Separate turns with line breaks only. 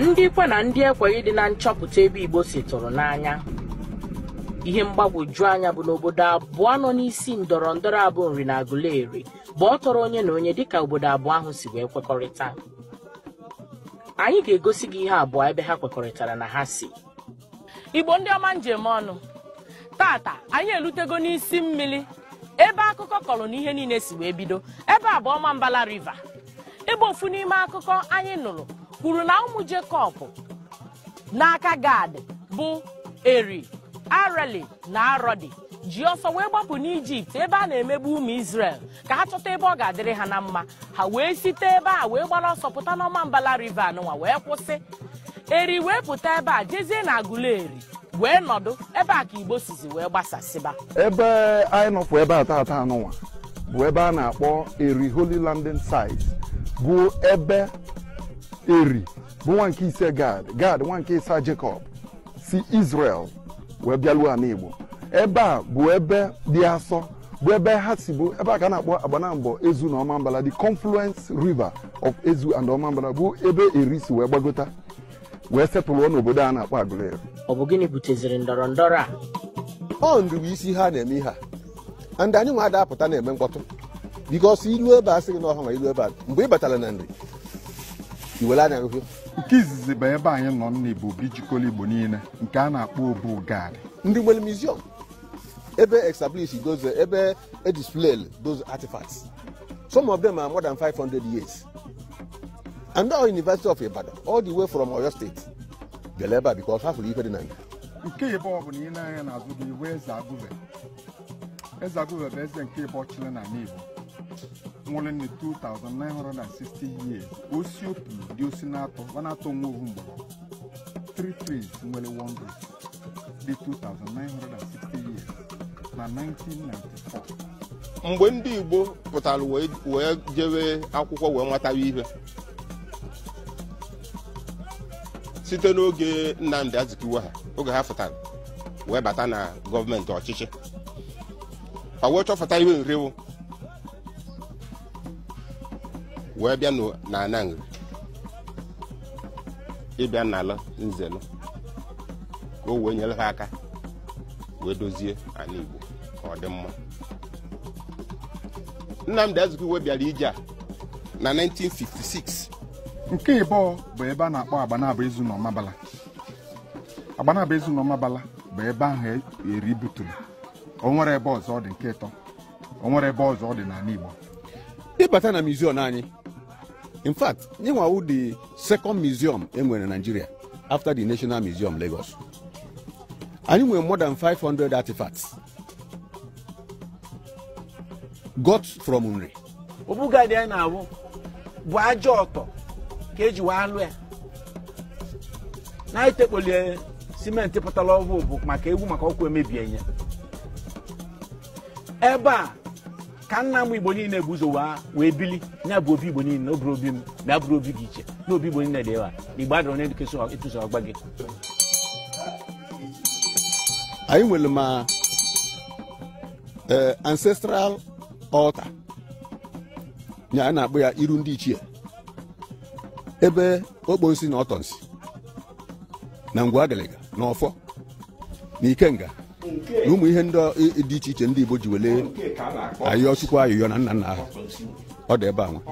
ndị ikwe na ndị ekweghị dị na nchọpụta ebe igbo si tụrụ n'anya ihe mgbagwoju anya bụ n'obodo abụọ nọ n'isi ndọrọ ndọrọ abụ nri na agụleri bụ ọ tọrọ onye na onye dịka obodo abụọ ahụ si wee kwekọrịta anyị ga-egosi gị ihe abụọ ebe ha kwekọrịtara na ha si igbo ndị ọma njem ọnụ tata anyị erutego n'isi mmiri ebe akụkọ kọrọ na ihe niile si wee bido ebe abụọ ma mbala riva ebe ofu n'ime akụkọ anyị nụrụ kwuru na ụmụ Jekọb n'aka Gad bụ eri arali na arodi ji ọsọ wee gbapụ n'ijipt ebe a na-emegbu ụmụ isrel ka ha chọta ebe ọ ga-adịrị ha na mma ha wee site ebe a wee gbara ọsọ pụta n'ọma mbala rive anụnwa wee kwụsị eri wee pụta ebe a jezie na eri wee nọdụ ebe a ka igbo sizi wee gbasasịba
ebe
anyị nọpụ ebe a taata bụ ebe a na-akpọ eri holy landing site bụ ebe eri bụ nwa nke ise gad gad nwa nke ịsa jacob si israel wee bịaluo ala igbo ebe a bụ ebe dị asọ bụ ebe ha si bụ ebe a ka a na-akpọ agbanambọ ezu na ọmambala the confluence river of ezu and ọmambala bụ ebe eri si wee gbagota wee setụlụọ n'obodo a na-akpọ
agụleri ọ bụ gịnị buteziri ndọrọ ndọrọ a ọ ndụ bụ isi ha na-eme ihe a ndị anyị nwa apụta na-eme mkpọtụ bikọs ilu ebe a sịghị n'ọha ma ilu ebe a mgbe ị batara na nri iwela na-arụfụ
nke izizi bụ ebe anyị nọ n'Igbo bụ ijikọla Igbo niile nke a na-akpọ obu gari ndị nwere museum ebe establish
those ebe edisplay those artifacts some of them are more than 500 years and all University of Ibadan all the way from Oyo State bịara ebe a because ha fụrụ ife dị na nga
nke ịbụ ọ bụ na ile anya n'azụ bụ iwe eze agụve eze agụve bụ eze nke ịbụ ọchịla na Igbo nwụrụ ni 2960 years osi opi dị osi na-atọ ọ na-atọ nwa ovu mgbọrọ 3 trees nwere wongo di 2960 years na 1994
mgbe ndị Igbo pụtara wee jewe akwụkwọ wee nwetawa ihe site n'oge Nnamdi Azikiwe ha oge ha pụtara wee bata na gọọmenti ọchịchị o wee chọpụta ihe nrewo wee bịa na nri ịbịa n'ala nzelu ka o wee nyere ha aka wee dozie ala igbo ka ọ dị mma bịara ije a na
1956 nke ịbụọ bụ ebe a na-akpọ agbanaba ezu na agbanaba ezu na bụ ebe ahụ eri buturu o nwere ebe ọzọ dị nke ịtọ o nwere ebe ọzọ dị n'ala igbo ịbata na mizion anyị
in fact ịnwawu the second museum enwere Nigeria after the National Museum Lagos anyị nwere more than 500 artifacts got from Nri
ọbụgadị anyị na-awụ bụ ajọ ọtọ ka eji wee alụ ya na itekpoli simenti pụtara ọvụ bụ maka egwu maka ọkụ emebie ya ebe a ka nna m igbo niile bụ ụzọ wee bili nya bụ obi igbo niile n'obere obi m na abụrụ obi gị iche na obi igbo niile dị ewa igbo na ịtụso ọgba gị anyị nwere ma
e, ancestral altar nya a na-akpọ ya iru ndị ichie ebe okposi na Ọtọnsi na ngwa agaliga na ọfọ na ikenga na ụmụ ihe dị iche iche ndị Igbo ji
welee ayọ chukwu ayọyọ na nna nna ha ọ dị ebe a nwa